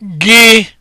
gị